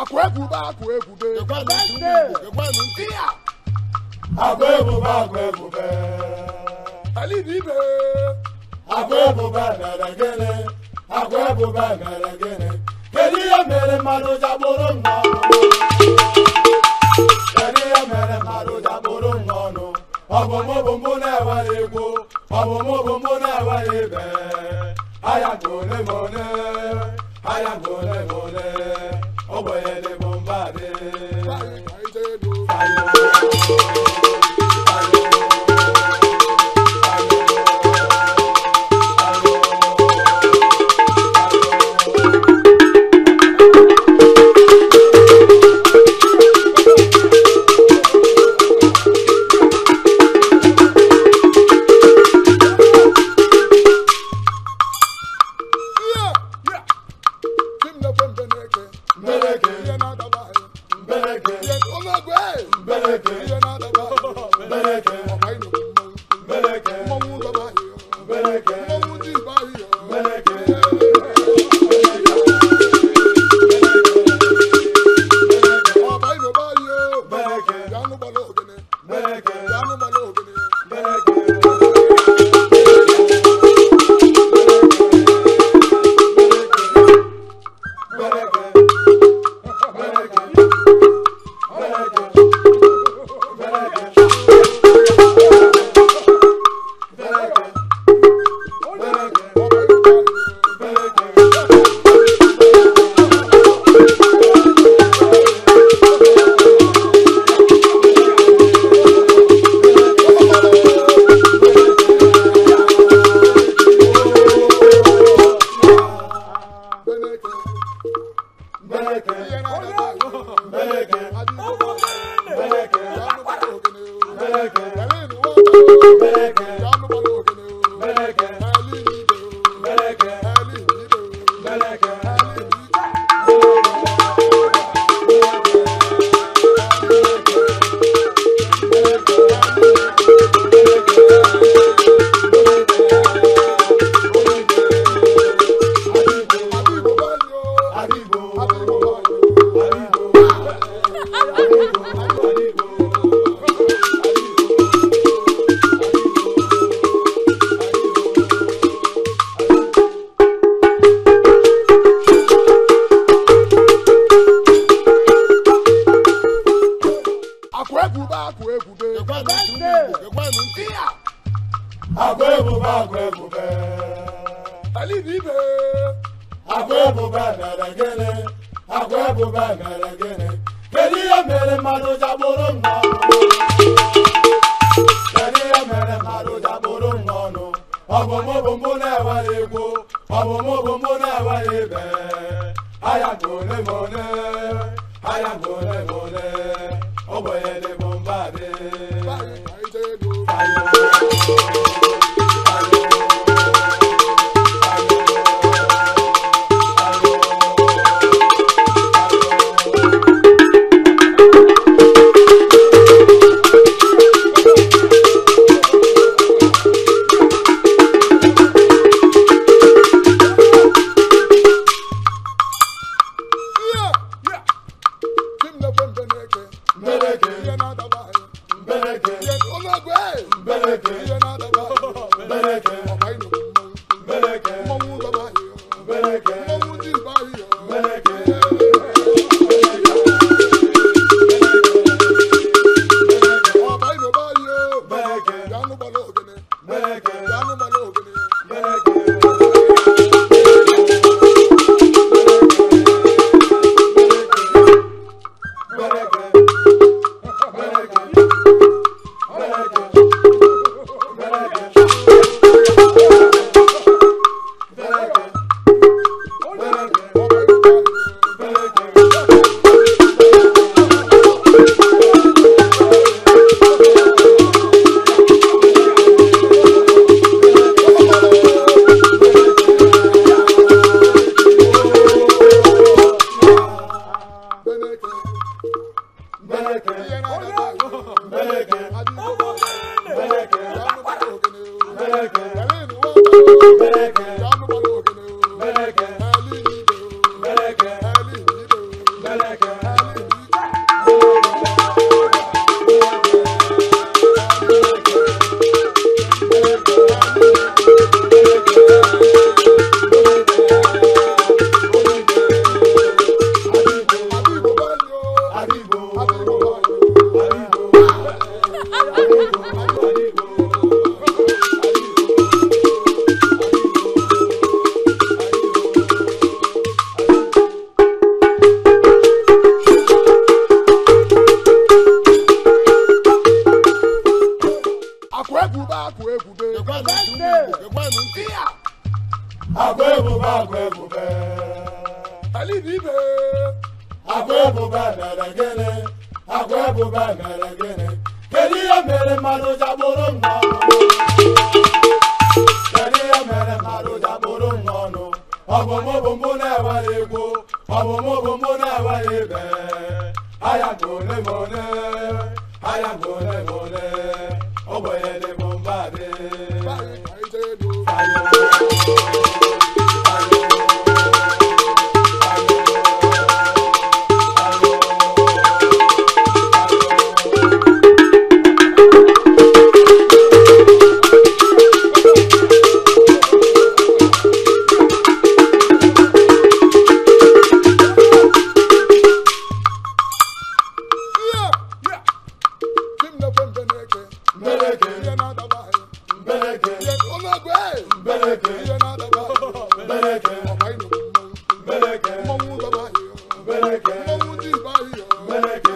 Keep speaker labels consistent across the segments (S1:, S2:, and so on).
S1: akọ̀ẹ́bù bá akọ̀ẹ́bù bẹ́ẹ̀. kíá.
S2: akọ̀ẹ́bù bá akọ̀ẹ́bù bẹ́ẹ̀. ẹ̀lí ní ibẹ̀. akọ̀ẹ́bù bá nàrà gẹ́lẹ́ akọ̀ẹ́bù bá nàrà gẹ́lẹ́ kẹ́lí yẹ mẹ́rẹ̀ mmadụ jaboro nnọọ. kẹ́lí yẹ mẹ́rẹ̀ mmadụ jaboro nnọọ ọbụmụbụmụ na-ewere egwu ọbụmụbụmụ na-ewere ibe aya gole gole aya gole gole. away.
S3: mbereke mbereke onye ọgwụ ee
S2: libe akwebu ba merengene akwebu ba merengene kedi ya mere mmadụ jabụrụ n'ọnụ kedi ya mere mmadụ jabụrụ n'ọnụ ọbụmụbụmụ na-ewere egwu mo na-ewere ibe aya na ole ma ole
S3: Yeah.
S1: again.
S2: akwa ebube mere gịnị kedu ihe mere mmadụ ji abụrụ mmanụ kedu ihe mere mmadụ ji abụrụ mmanụ ọbụmụbụmụ na-ewere igbo ọbụmụbụmụ na-ewere ibe aya ma ole
S3: mọ́mú dìbà yìí.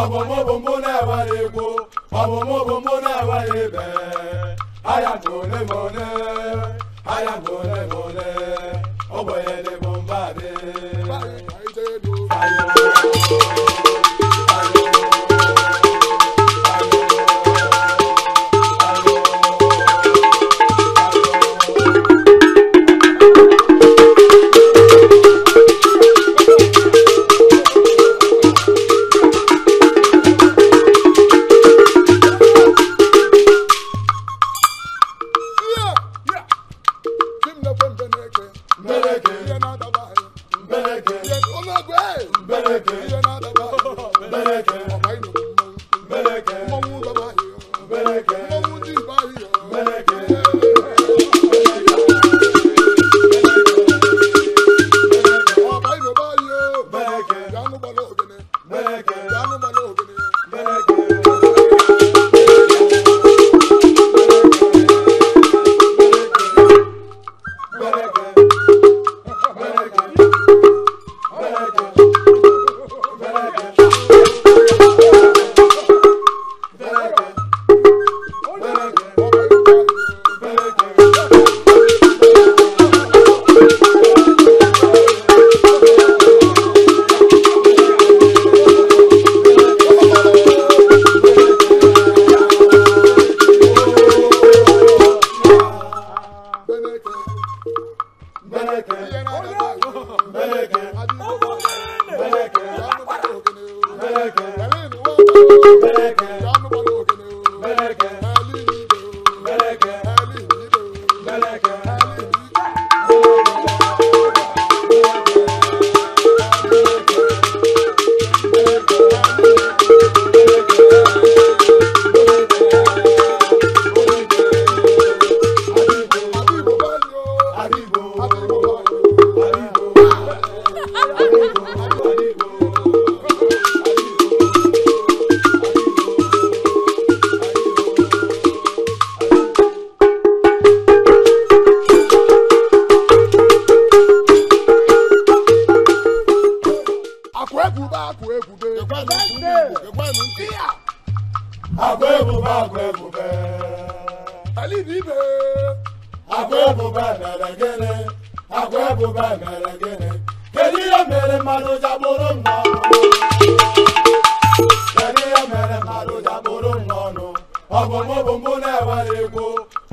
S2: ọbọmọbọmọ náà wà lè gbó ọbọmọbọmọ náà wà lè bẹ́ẹ̀ àyàtọ̀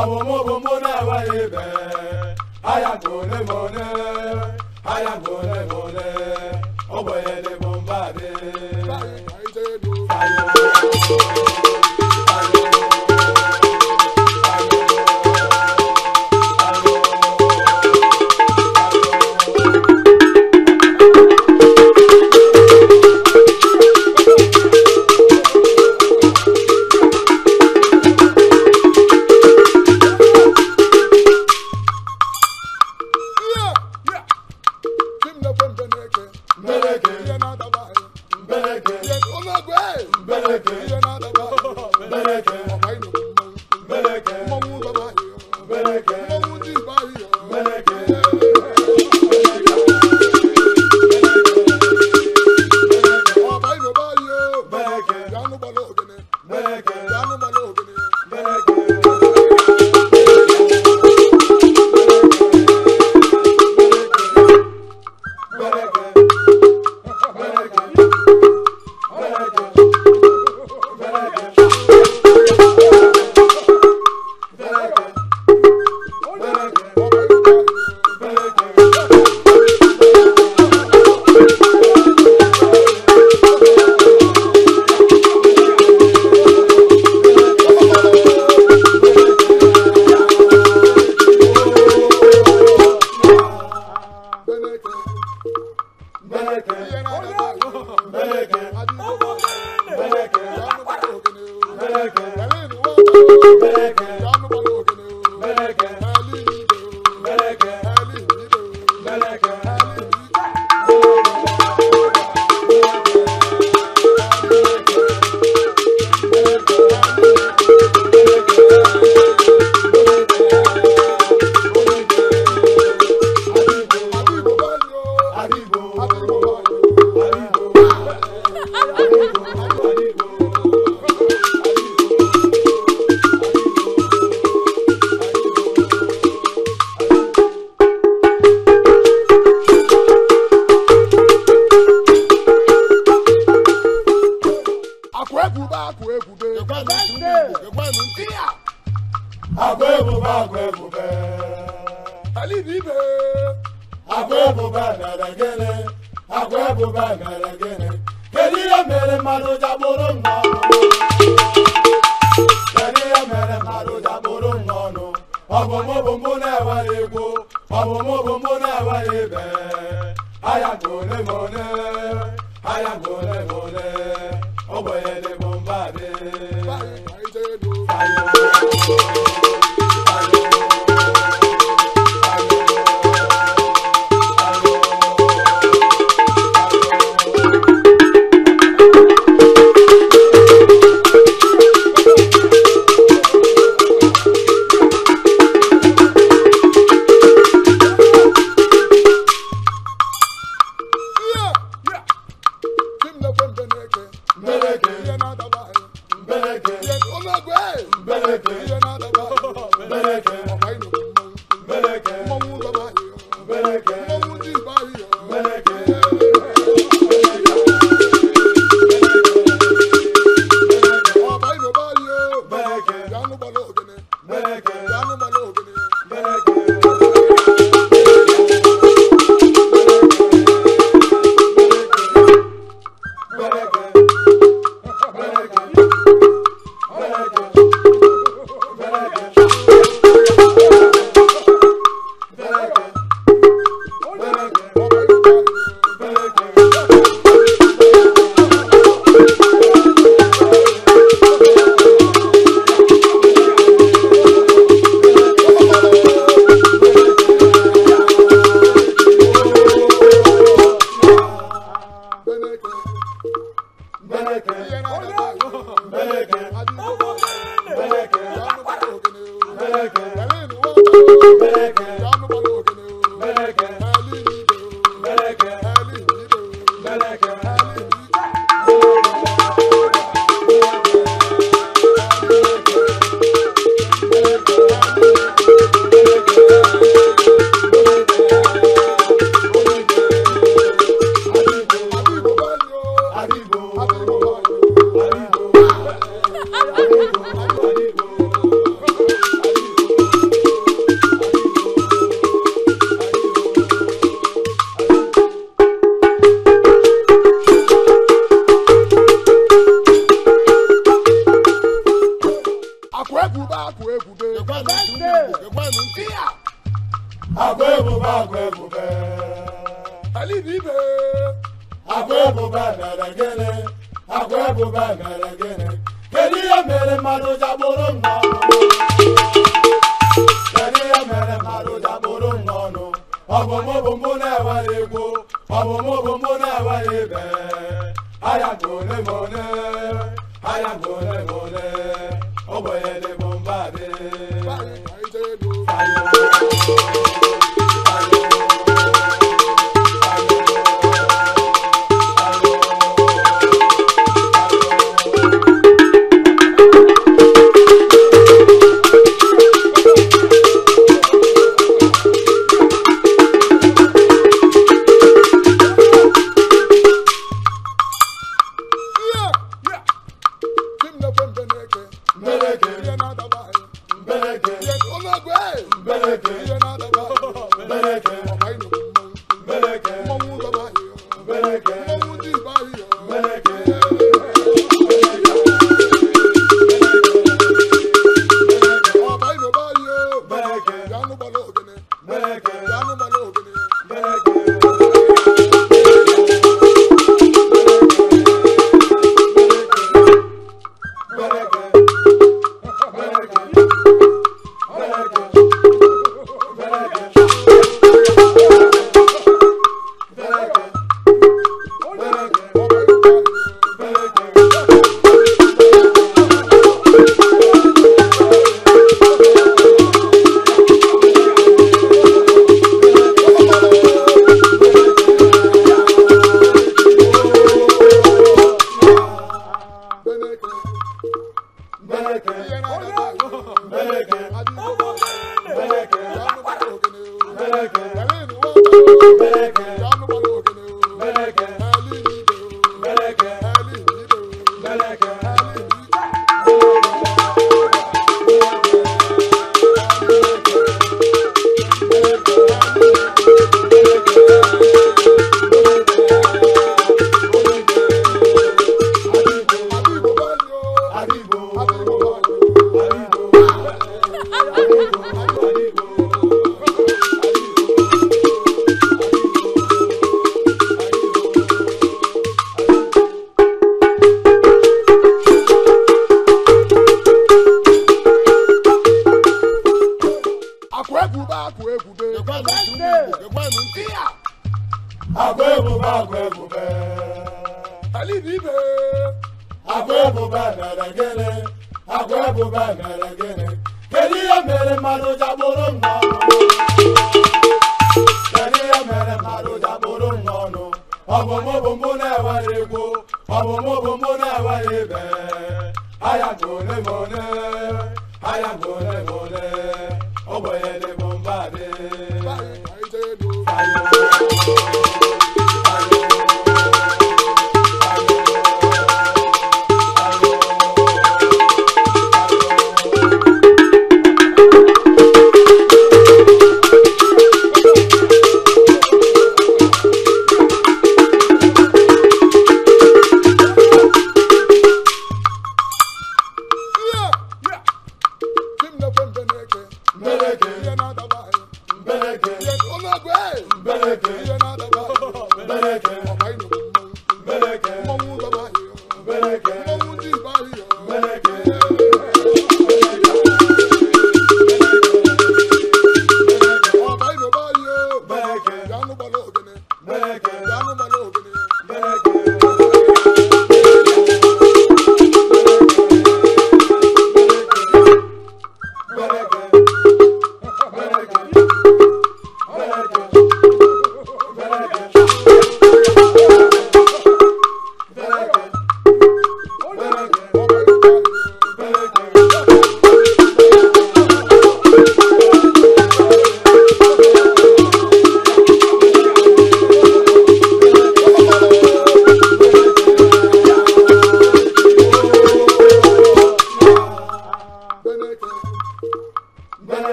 S2: ọ̀bùnmọ́bùnmọ́ náà wáyé bẹ́ẹ̀ àyàgbọ́n lẹ́mọ̀ọ́ náà àyàgbọ́n lẹ́mọ̀ọ́ náà. Bole, bole.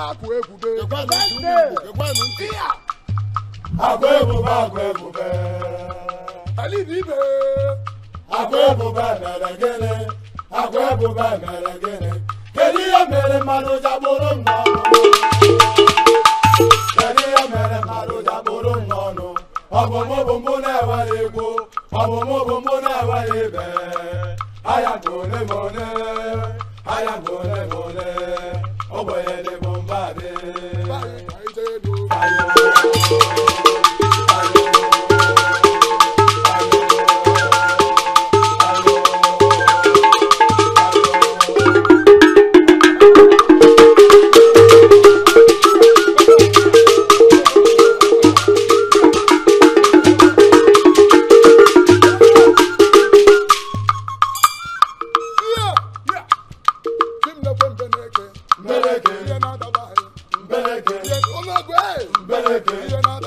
S1: akụ egwube akụ
S2: ebube akụ ebube alibibe akụ ebube mere gịnị akụ ebube mere gịnị kedu ihe mere mmadụ ji mma ewere egwu ewere aya ole ma ole aya ole ma ole Bàbá. Báyìí báyìí tẹ́
S3: You're not